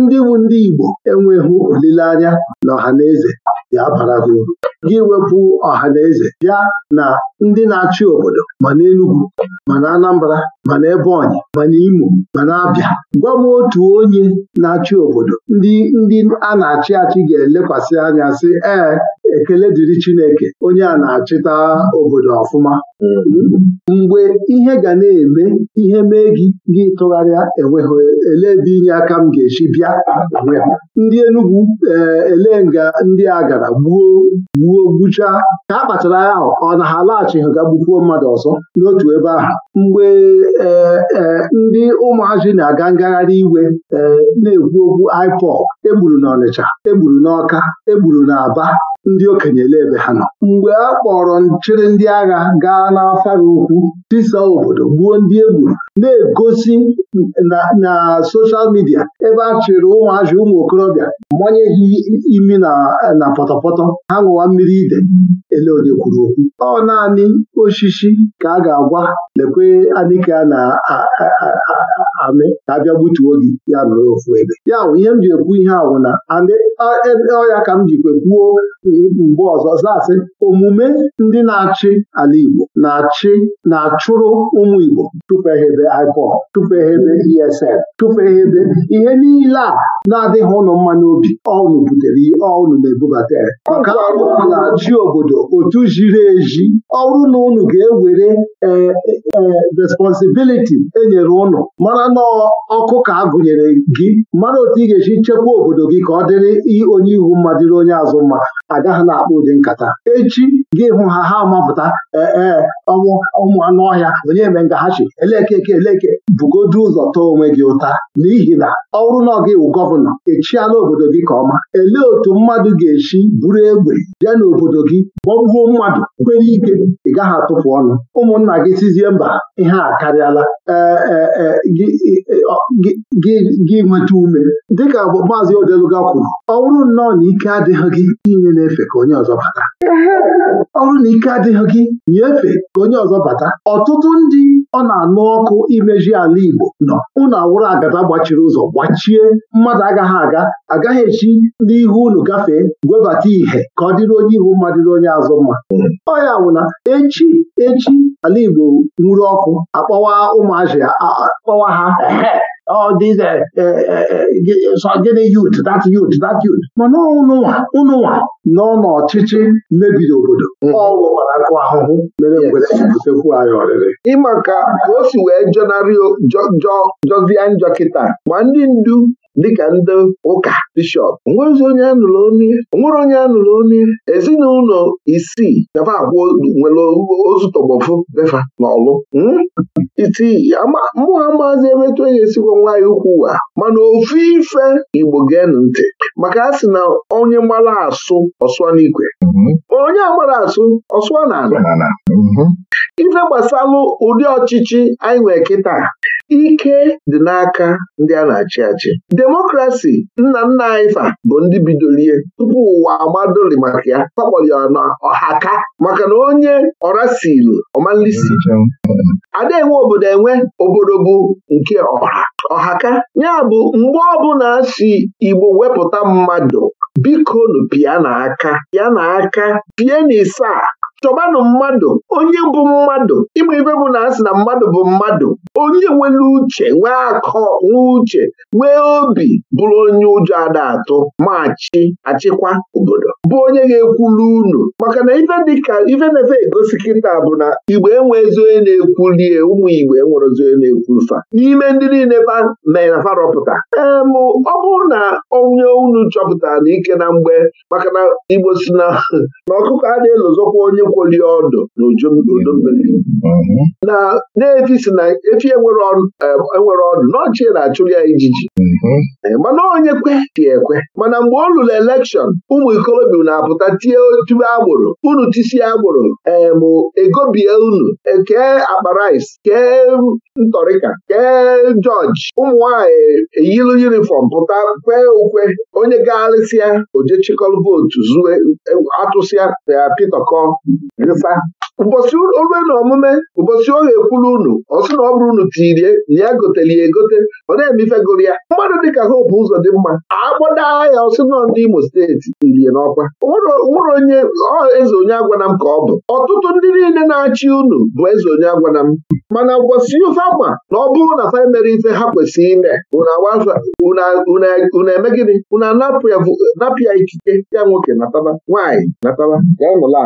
ndị bụ ndị Igbo enweghị olileanya na ọha na eze ga-abara ha uru gị wepụ ọha na eze bịa na ndị na-achị obodo ma na enugwu ma na Anambra ma na Ebonyi ma na Imo ma na Abịa gwa m otu onye na-achị obodo ndị ndị a na-achị achị ga-elekwasị anya sị ee ekele dịrị Chineke onye a na-achịta obodo ọfụma mgbe ihe ga na-eme ihe mee gị gị tụgharịa enweghị ele ebe inye aka m ga-echi bịa ndị Enugwu eh, ele nga ndị a gara gbuo gbuo gbuchaa ka a kpachara ya ahụ ọ na ha alaghachighị ga gbukwuo mmadụ ọzọ n'otu ebe ahụ mgbe eh, eh, ndị ụmụazị na-aga ngagharị iwe na-ekwu okwu IPOB egburu n'Ọnịcha egburu n'Ọka egburu n'Aba ndị okenye ele ebe ha nọ mgbe a kpọrọ nchịrị ndị agha gaa n'afara ukwu tisa obodo gbuo ndị egburu na-egosi na soshal midia ebe a chịrị ụmụazị ụmụ okorobịa manye ha imi na pọtọpọtọ ha ṅụwa mmiri ide ele onye kwuru okwu ọ naanị osisi ka a ga-agwa lekwe anike a na-amị ka abịa gbutuo gị ya nọrọ ofu ebe ya ihe m ji ekwu ihe awụ na e, ọya ka m jikwa kwuo mgbe ọzọ zasị omume ndị na-achị ala Igbo na-achị na-achụrụ ụmụ Igbo tụpeghebe IPOB tụpeghebe ESN tụpeghebe ihe niile a na-adịghị ụlọ mma n'obi ọnụ butere ihe ọnụ na-ebubata maka na-achị obodo otu jiri eji ọrụ na ụnụ ga-ewere e, e, e, responsibiliti enyere ụnụ mara na ọkụ ka a gụnyere gị mara otu ị ga-esi chekwa obodo gị ka ọ dịrị onye ihu mma dịrị onye azụ mma A aga ha na-akpa ụdị nkata echi gị hụ ha ha mapụta ee ọnwụ ụmụ anụ ọhịa onye eme ngahachi elekeke eleke bugodu ụzọ tọọ onwe gị ụta n'ihi na ọ bụrụ na gị wụ gọvanọ echiala obodo gị ka ọma elee otu mmadụ ga echi buru egbe bịa n'obodo gị gbọgbuo mmadụ kwere ike ị gaghị atụpụ ọnụ ụmụnna gị sizie mba ihe a karịala e, e, e, gị nweta ume dịka maazị Odeluga kwuru ọ bụrụ nnọọ na ike adịghị gị inyere na-efe ka onye ọzọ bata ọ bụrụ na ike adịghị gị nyefee ka onye ọzọ bata ọtụtụ ndị ọ na-anụ ọkụ imeji ala Igbo nọ ụnụ awụrụ agada gbachiri ụzọ gbachie mmadụ agaghị aga agaghị echi n'ihu unu gafee gwebata ìhè ka ọ dịrị onye ihu mma dịrị onye azụ mma ọ ya echi echi ala Igbo nwuru ọkụ akpọwa ụmụazị akpọwa ha all these uh, uh, uh, gịnị youth that youth that youth mana ụnụnwa ụnụnwa nọ n'ọchịchị mebiri obodo ọwụwarakụ ahụhụ mere ngwere butekwu anyị ọrịrị ịmaka ka o si wee jọnarị jọzie njọ kịta ma ndị ndu dịka ndị ụka bishọp onwere onye anụrụ onye ezinụlọ isii nafa abụọ nwere ozu tọgbọfụ befa n'ọlụ hmm? isii mụ ha maazị onye e nwaanyị ukwu ụwa mana ofu ife igbo geenụ ntị maka a si na onye mara asụ ọsụa n'ikwe hmm? onye agbara asụ ọsụa na ala hmm? ife gbasalụ ụdị ọchịchị anyị nwee kịta ike dị n'aka ndị a na-achị achị demokrasi nna nna anyị fa bụ ndị bidolie tupu ụwa amadoli maka ya kpakpọli na ọhaka maka na onye ọrasilu ọmalisi ada enwe obodo enwe obodo bụ nke ọha ọhaka ya bụ mgbe ọbụla si Igbo wepụta mmadụ biko nụ na aka ya na aka pịa na ịsaa chọbanụ mmadụ onye bụ mmadụ ịma ibe bụ na asị na mmadụ bụ mmadụ onye nwere uche nwee akọ nwee uche nwee obi bụrụ onye ụjọ ada atụ machi achịkwa obodo bụ onye ga-ekwulu unu maka na ife dịka ife na-efe egosi kịta bụ na Igwe enwe ezi onye na-ekwulie ụmụ igbe enwere ezi onye na-ekwulu fa n'ime ndị niile fa mere na farọpụta ee m ọ bụrụ na onye unu chọpụtara na ike na mgbe maka na igbo si na ọkụkọ a na-elozokwa onye ekwoli ọdụ na mmiri na na-efi si na efi enwere ọdụ eh, na na-achụrụ ya ijiji eh, mana onye kwe dị ekwe mana mgbe ọ lụrụ elekshọn ụmụ ikolobia na-apụta tie tube agbụrụ, unu tisie agbụrụ ee eh, egobie unu kee akpa rice kee ntọrịka kee jọji ụmụ eyilu yunifọm pụta kwee ukwe onye gagharịsịa oje chịkọrọ vootu zue atụsịa pịa pitọkọ ifa ụbọchị orue na omume ụbọchị ọ ga-ekwuru unu ọsị na ọ bụrụ unu tirie na ya goteli ya egote ọ na-emife gụrụ ya mmadụ dịka hope ụzọ dị mma akpọda ya ọsị nọ ndị Imo steeti irie n'ọkwa nwere onye eze onye agwana m ka ọ bụ ọtụtụ ndị niile na-achị unu bụ eze onye agwana m mana ụbọchị ofe ama na ọ bụrụ na fa mere ife ha kwesịrị ime unu eme gịnị unu ikike ya nwoke nataba nwaanyị nataba ala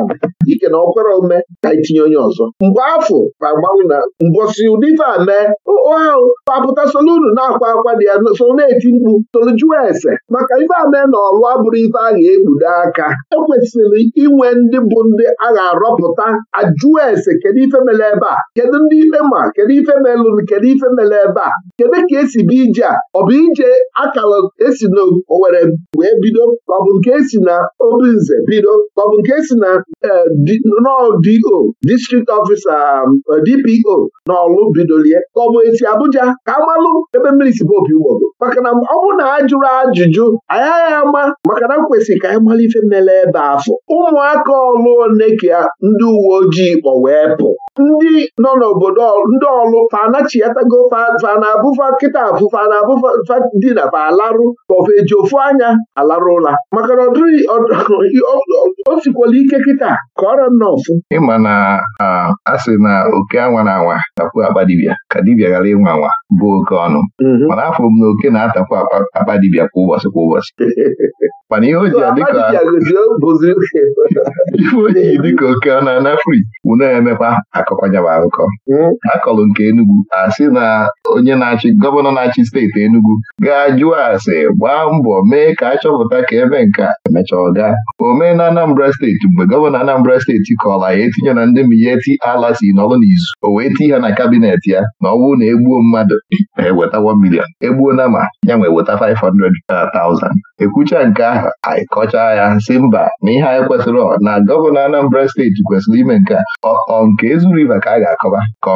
ike na ọkwere ome ga etinye onye ọzọ mgbe afọ agbanwe na mbọsị ụdị ife a mee ahụ papụta solunu na-akwa akwa dị ya so na-eti mkpu jụọ ese maka ife a mee na ọlụ abụrụ ife a ga-ekpudo aka ekwesịrị inwe ndị bụ ndị a ga-arọpụta ajụọ ese kedu ife mere ebe a kedu ndị ikpe ma kedu ife melụrụ kedu ife mere ebe a kedu ka esi bụ ije a ọ bụ ije akara esi na Owere wee bido ọbụ ọ bụ nke si na Obinze bido ọ bụ nke si na eh, Dị. DPO district ọfisa um, uh, DPO na ọlụ bidolie ka ọ bụ esi Abuja ka amalụ ebe mmiri si bụ opi ụgbọgo maka na ọ bụrụ na ajụrụ ajụjụ anyị agha ama maka na kwesịrị ka anyị mara ife mele ebe afọ ụmụaka ọlụ ya, ndị uwe ojii kpọ wee pụ ndị nọ n'obodo ndị ọlụ fanachiatago fanabụfa kịta abụfa na abụfa dị na fa alarụ maọbụ eji ofu anya alarụ ụla maka na o sikwala ike kịta ka ọrịa nna ọfụ ịma na a sị na oke anwa na anwa tapụ akpa dibịa ka dibịa ghara ịnwa anwa bụ oke ọnụ mhm. mana afọ m na oke na-atapụ akpa dibịa kwa ụbọchị kwa ụbọchị mana ihe o ji adịka ife o ji dịka oke ọnụ anafri bụ na-emepa akọkwanyabakụkọ akọlụ nke Enugwu asị na onye na-achị gọvanọ na-achị steeti Enugwu ga ajụọ ase gbaa mbọ mee ka achọpụta ka ebe nka emechaa ọga Omee na Anambra steeti mgbe gọvanọ Anambra steeti kọrọ ya etinye na ndị miyeti ala si n'ọlụ n'izu o wee ti ha na kabinet ya na ọ bụrụ na egbuo mmadụ eweta 1 million egbuo na ma ya nwee weta 500,000 ekwucha nke ahụ anyị kọchaa ya si mba na ihe anyị kwesịrị na gọvanọ Anambra steeti kwesịrị ime nke a ọ nke Ezu River ka a ga-akọba ka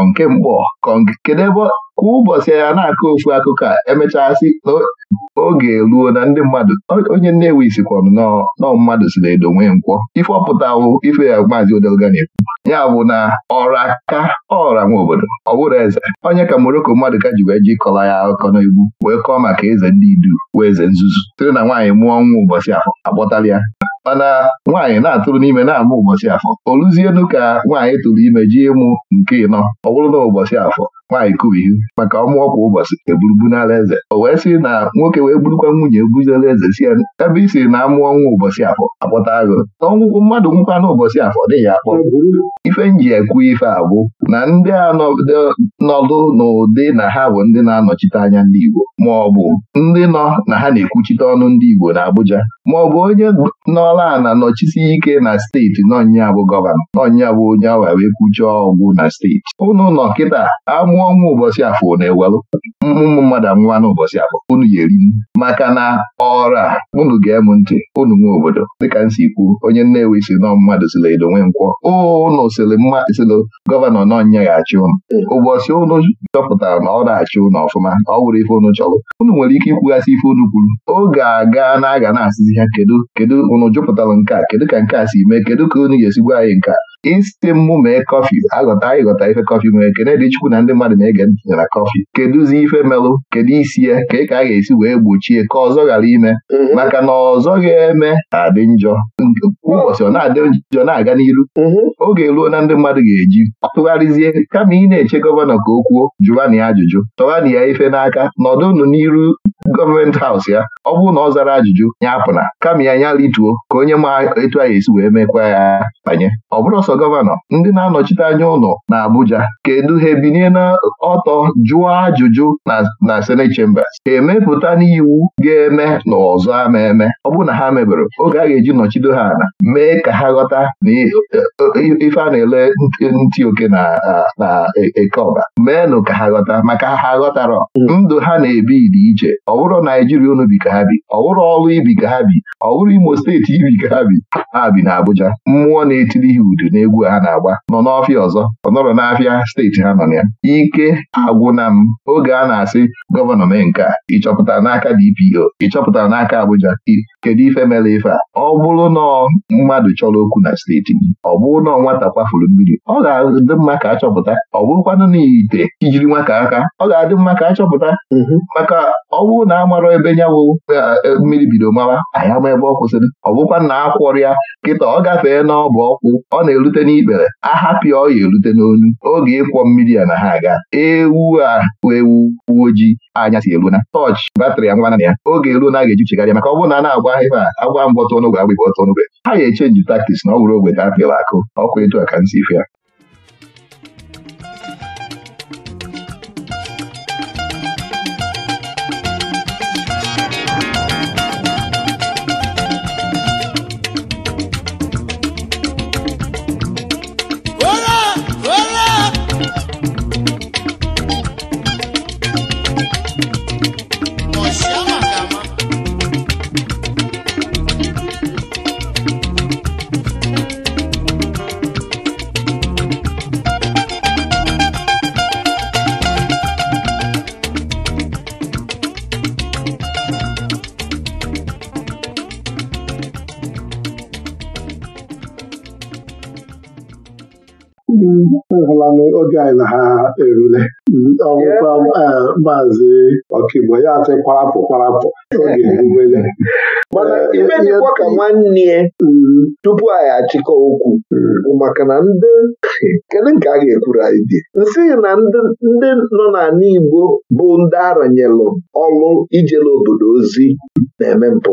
nke kedu ebe kwa ụbọchị ya na-akọ ofu akụkọ a emechasị n'oge ruo na ndị mmadụ onye nnewi sikwanụ nọ mmadụ si edo nwee nkwọ ife ọpụtawụ ife ya maazị odelga na-ekwu ya bụ na ọra ka ọra nwa obodo ọ bụrụ eze onye ka moroko mmadụ ka ji wee ji kọla ya akụkọ n'egwu wee kọọ maka eze ndị idu wee eze nzuzu site na nwaanyị mụọ nwa ụbọchị afọ akpọtala ya mana nwaanyị na-atụrụ n'ime na-amụ ụbọchị afọ o ka nwaanyị tụrụ ime ji ịmụ nke ịnọ ọ bụrụ na ụbọchị afọ nwaanyị kubighị maka ọmụọ kwa ụbọchị eburubu n'ala eze o wee sị na nwoke wee gburukwa nwunye ebuzela eze si ya ebe i siri na amụọ nwa ụbọchị afọ akpọta agụ na ọnwụkwụ mmadụ nwụkwa n'ụbọchị afọ dịghị akpọ ife nji ekwu ife abụ na ndị a nọdụ n'ụdị na ha bụ ndị na-anọchite anya ndị Igbo ma ọ bụ ndị nọ na ha na-ekwuchite ọnụ ndị Igbo na Abuja ma ọ bụ onye nọla ana nọchisi ike na steeti nọnya gọvanọ nọnya onye awa wee kwuchie ọgwụ na steeti ụnụ nọ kịta amụ nwa ọnwa ụbọchị afọ na-ewelụ ụmụ mmadụ anwụwa n'ụbọchị afọ unu ga-eri maka na a, unu ga-emu ntị unu nwe obodo dịka nsi kwuo, onye Nnewi si nọ mmadụ siri edo nwe ụnụ unu mma mmasịlụ gọvanọ nọnyeghachi ụnụ ụbọchị ụnụ chọpụtara na ọ na-achị ụnụ ọfụma ọ wụrụ ife ụnụ chọrọ unu nwere ike ikwughasị ife unu kwuru oge aga na-aga na-asịzi ha kedu kedu unu jụpụtara nke a kedu ka nke a si mee kedu ka unu ga esigwa anyị nke a isi mmụ mee kọfị aghọta ịghọta ife kọfị nwere kene dị chukwu na ndị mmadụ na-ege ntị nyara kọfị kedụzi ife melụ kedu isi ya ka ị ka a ga-esi wee gbochie ka ọzọ ghara ime mhm. maka na ọzọ ga-eme adị njọ ụbọchị ọ na-adị njọ na-aga n'iru mhm. oge ruo na ndị mmadụ ga-eji tụgharịzie kama ị na-eche gọvanọ ka o kwuo jụwani ya ajụjụ tọwani ya ife n'aka nọdụnụ n'iru gọọmenti haus ya ọ bụrụ na ọ zara ajụjụ ya apụna kama ya nya rituo ka onye ma etu a ga-esi wee mekwa ya banye ọ bụrụ ọsọ gọvanọ ndị na-anọchite anya ụlọ na Abuja kedu ha ebinye ọtọ jụọ ajụjụ na Senate Chambers ha emepụta n'iwu ga-eme na ọzọ ama eme ọ bụrụ na ha mebere oge a ga-eji nọchido ha ala mee ka ha ghọta na e, e, e, ife a na-ele ntị oke na eke ọba meenụ ka ha ghọta maka ha ghọtara hmm. ndụ ha na-ebi dị iche ọ bụrụ Naijiria unu bi ka ha bi ọ bụrụ ọrụ ibi ka ha bi ọ bụrụ Imo steeti ibi ka ha bi ha bi na Abuja mmụọ na-etiri ha udu n'ebe egwu a na-agba nọ n'ọfịa ọzọ ọ nọrọ n'afịa steeti ha nọ ya ike agwụna m oge a na-asị gọvanọ mee nke a ịchọpụtara n'aka DPO ịchọpụtara n'aka Abuja kedu ife mere ife a ọ bụrụ na mmadụ chọrọ okwu na steeti ọ bụrụ na nwata kwafuru mmiri ọ ga-adị mma ka achọpụta ọ bụrụkwanụ na ite ijiri nwata aka ọ ga-adị mma ka achọpụta mm-hmm. maka ọ bụrụ na a mara ebe nyawo e, e, mmiri bido mawa anyị ama ebe ọ kwụsịrị ọ bụkwa na akwọrọ ya kịta ọ gafee n'ọbụ ọkwụ ọ na elu erute n'ikpere ahapịa ọya erute n'onu oge ịkwọ mmiri a na ha aga ewu a ewu uwe anya si eruna tọch batrị a ngwana na ya oge eruo na a ga-ejichegharịa maka ọ bụrụ na a na-agba a agba mbọtụ ọnụgwe agba ịbọtụ ọnụgwe ha ga-echenji taktiks na ọ bụrụ ogwe ga a akụ ọkụ etu a ka m si ya. mmanụ oge anyị na ha erule ọgwụkwa eh, maazị ọkaigbo ya asị kwarapụ kwarapụ oge erubele mana eh, ibe dịkwa ka nwanne ya mm. tupu anyị achịkọ okwu mm. maka na ndị kedu nke a ga-ekwuru anyị dị nsị na ndị nọ n'ala Igbo bụ ndị aranyelụ ọlụ ijele obodo ozi na-eme mpụ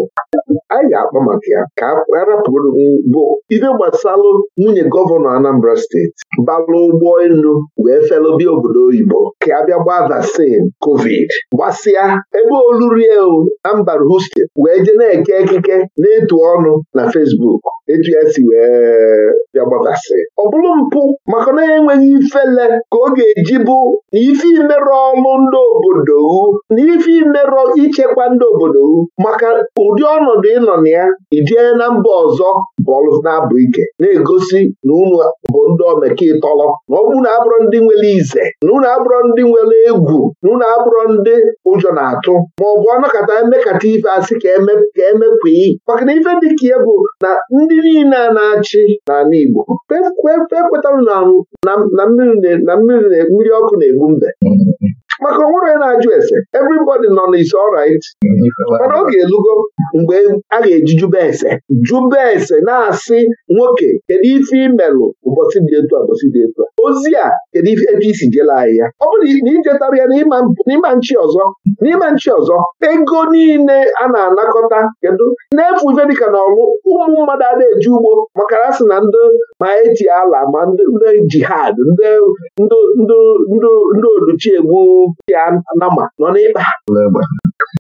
anyị ga-akpa maka ya ka a rapụrụ bụ ibe gbasalụ nwunye gọvanọ Anambra steeti balụ ụgbọ ofe nnu wee felobia obodo oyibo ka a bịa gbaa vaccine covid gbasịa ebe olurie o na mba Houston wee je na-eke ekike na-etu ọnụ na Facebook etu ya si wee bịa gbaa vaccine ọ bụrụ mpụ maka na enweghị ifele ka ọ ga-eji bụ na ife imerụ ọlụ ndị obodo na ife imerụ ichekwa ndị obodo maka ụdị ọnọdụ ịnọ na ya ijee na mba ọzọ bọọlụ na-abụ ike na-egosi na unu bụ ndị omekịtọlọ na ọ unu abụrụ ndị nwere ize na unu abụrụ ndị nwere egwu na unu abụrụ ndị ụjọ na-atụ ma ọ bụ ọnọkọta emekata ife asị ka emekwa maka na ife dị ka ya bụ na ndị niile a na-achị n'ala Igbo ekwetara na mmiri ọkụ na-egbu mbe maka onwere ya na-ajụ ese everybody nọ na isi ọrit mana ọ ga-elugo mgbe a ga-eji jube ese jube ese na-asị nwoke kedu ife imelụ ụbọchị dị etu a ụbọchị dị etu a ozi a kedu ife ebe isi jela anyị ya ọ bụrụ na ichetara ya n'ịma nchi ọzọ n'ịma nchi ọzọ ego niile a na-anakọta kedu na-efu ife dịka na ọlụ ụmụ mmadụ a eji ugbo maka na na ndị ma eji ala ma ndị jihad ndị oluchiegbu ya nama nọ n'ịkpa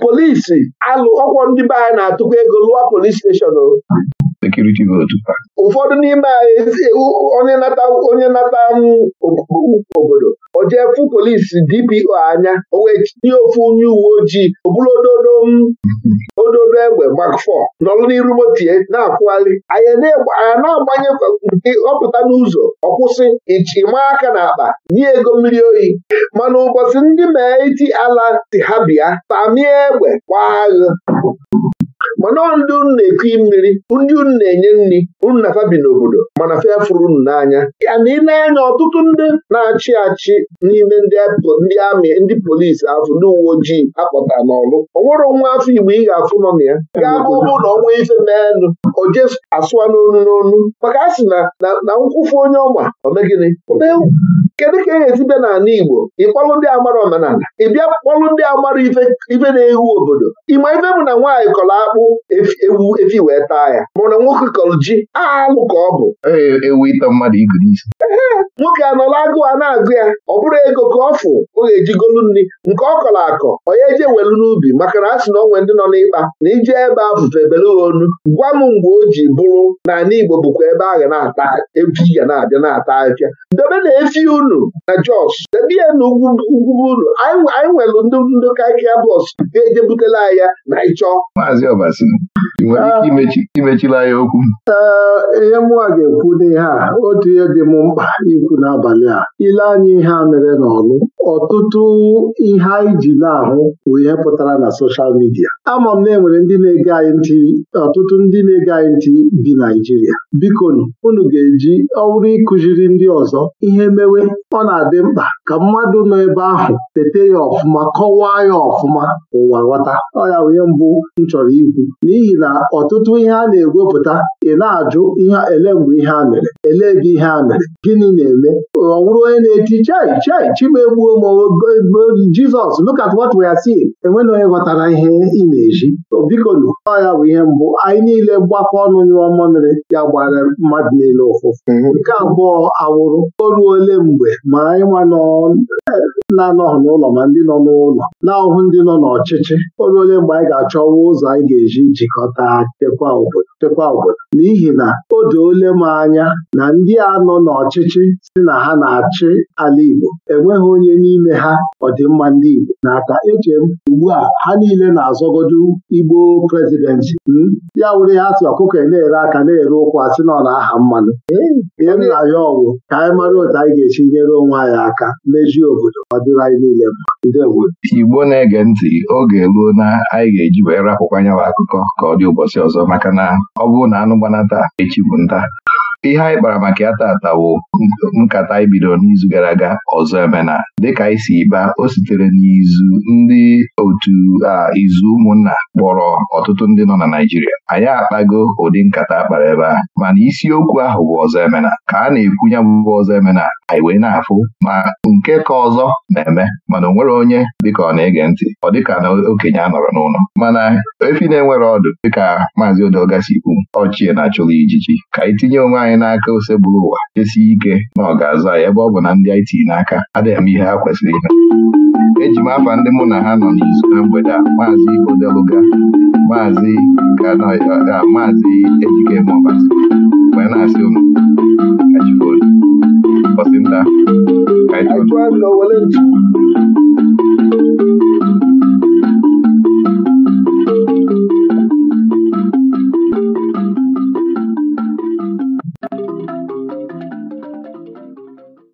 polisi alụ ọkwọ ndị be anyị na-atụkwa ego lụọ polis steshọn ụfọdụ n'ime anyị onye nata onye obodo o fụ polisi DPO anya o wee tinye ofu onye uwe ojii obulodo odobe egbe gbakfọ nọrọ n'iru motie na-akwụgharị anya na-agbanye nke ọpụta n'ụzọ ọkwụsị ịchịma aka na akpa nye ego mmiri oyi mana ụbọchị ndị mee iti ala si ha bịa tamie egbe gbaa agha mana ndị unu na-ekui mmiri ndị unu na-enye nri unu na fabi n'obodo mana fee fụrụ unu n'anya ya na ịna-anya ọtụtụ ndị na-achị achị n'ime ndị amị ndị polisi afọ ndị uwe ojii akpọta n'ọlụ onwere nwa afọ Igbo ị ga-afụ nọ na ya ga-abụ ụbụ na ọnwa ife meenụ o je asụa n'onu n'onu maka a sị na nkwụfu onye ọma omegịnị kedu ka e ga-esi bịa n'ala Igbo ịkpọlụ ndị amara omenala ị bịa kpọlụ ndị amara ife na-ehu obodo ịma ife bụ na nwaanyị kọrọ akpụ ewu efi wee taa ya mana nwoke kọrọ ji alụ ka ọ bụ e, ewu ịta mmadụ igiri isi nwoke anọla agụụ a na-agụ ya ọ bụrụ ego ka ọ fụ ọ ga-eji golu nri nke ọ kọrọ akọ onye ije welu n'ubi maka na a sị na onwe ndị nọ n'ịkpa na ije ebe afụfe ebele onu gwa m mgbe o ji bụrụ na ala Igbo bụkwa ebe a ga na-ata efi ga na-abịa na-ata afịa debe na efi unu na Jos debe ya na ugwu unu anyị nwere ndị kaikia bọs ga-eje butela ya na ịchọ Maazị ị nwere ike imechila ya okwu ihe mụnwa ga-ekwu n'ihe a otu ihe dị m mkpa ikwu n'abalị a ile anya ihe a mere n'ọlụ ọtụtụ ihe anyị ji na-ahụ bụ ihe pụtara na soshal midia ama m na enwere ndị na-ege anyị ntị ọtụtụ ndị na-ege anyị ntị bi Naijiria biko unu ga-eji ọwụrụ ịkụziri ndị ọzọ ihe mewe ọ na-adị mkpa ka mmadụ nọ ebe ahụ tete ya ọfụma kọwaa ya ọfụma ụwa ghọta ọya ya onye mbụ m chọrọ ikwu n'ihi na ọtụtụ ihe a na-egwepụta ị na-ajụ ihe ele mgbe ihe a mere ele ebe ihe a mere gịnị na-eme ọ bụrụ onye na-eti chai chai chima egbuo Jizọs look at enweghị onye ghọtara ihe ị na-eji bikonu ọya ya bụ ihe mbụ anyị niile gbakọ ọnụ nyụọ mmamịrị ya gbara mmadụ niile ụfụfụ mhm. nke abụọ awụrụ o ruole mgbe ma anyị nwa e, na-anọghị n'ụlọ ma ndị nọ n'ụlọ na-ahụhụ ndị nọ n'ọchịchị o ruole mgbe anyị ga-achọwa ụzọ anyị ga-eji jikọta chekwa obodo chekwa obodo n'ihi na o doole m anya na ndị a nọ n'ọchịchị si na ha na-achị ala Igbo enweghị onye n'ime ha ọdịmma ndị Igbo n'aka eche m ugbu a ha niile na-azọgodu Igbo prezidentị hmm? ya wụrụ ya sị ọkụkọ na-ere aka na-ere ụkwa asị na ọ na-aha mmanụ ihe na ya ọgwụ ka anyị mara otu anyị ga echi nyere onwe anyị aka mejie obodo ọ dịrị anyị niile mma Igbo na-ege ntị oge ruo na anyị ga-eji wee rapụkwa nyawa akụkọ ka ọ dị ụbọchị ọzọ maka na ọ bụrụ na anụ gbanata echi bụ nta ihe anyị kpara maka ya tata wụ nkata anyị bidoro n'izu gara aga ọzọ emena dịka isi si baa o sitere n'izu ndị otu izu ụmụnna kpọrọ ọtụtụ ndị nọ na Naịjirịa anyị akpago ụdị nkata kpara ebe a mana isiokwu ahụ bụ ọzọ emena ka a na-ekwu ya bụ ọzọ emena anyị wee na-afụ ma nke ka ọzọ na-eme mana o nwere onye dịka ọ na-ege ntị ọ dịka na okenye a nọrọ n'ụlọ mana efi na-enwere ọdụ dịka maazị Odogasi kwu ọchie na-achụla ijiji ka anyị tinye onwe anyị anyị n'aka bụrụ ụwa esi ike na ọ ga-azụ anyị ebe ọ bụ na ndị IT n'aka adịghị m ihe ha kwesịrị ime eji m afa ndị mụ na ha nọ n'izu na mgbede a maazị Odeluga maazị ga maazị Ejike Mọbasi wee na-asị ụnụ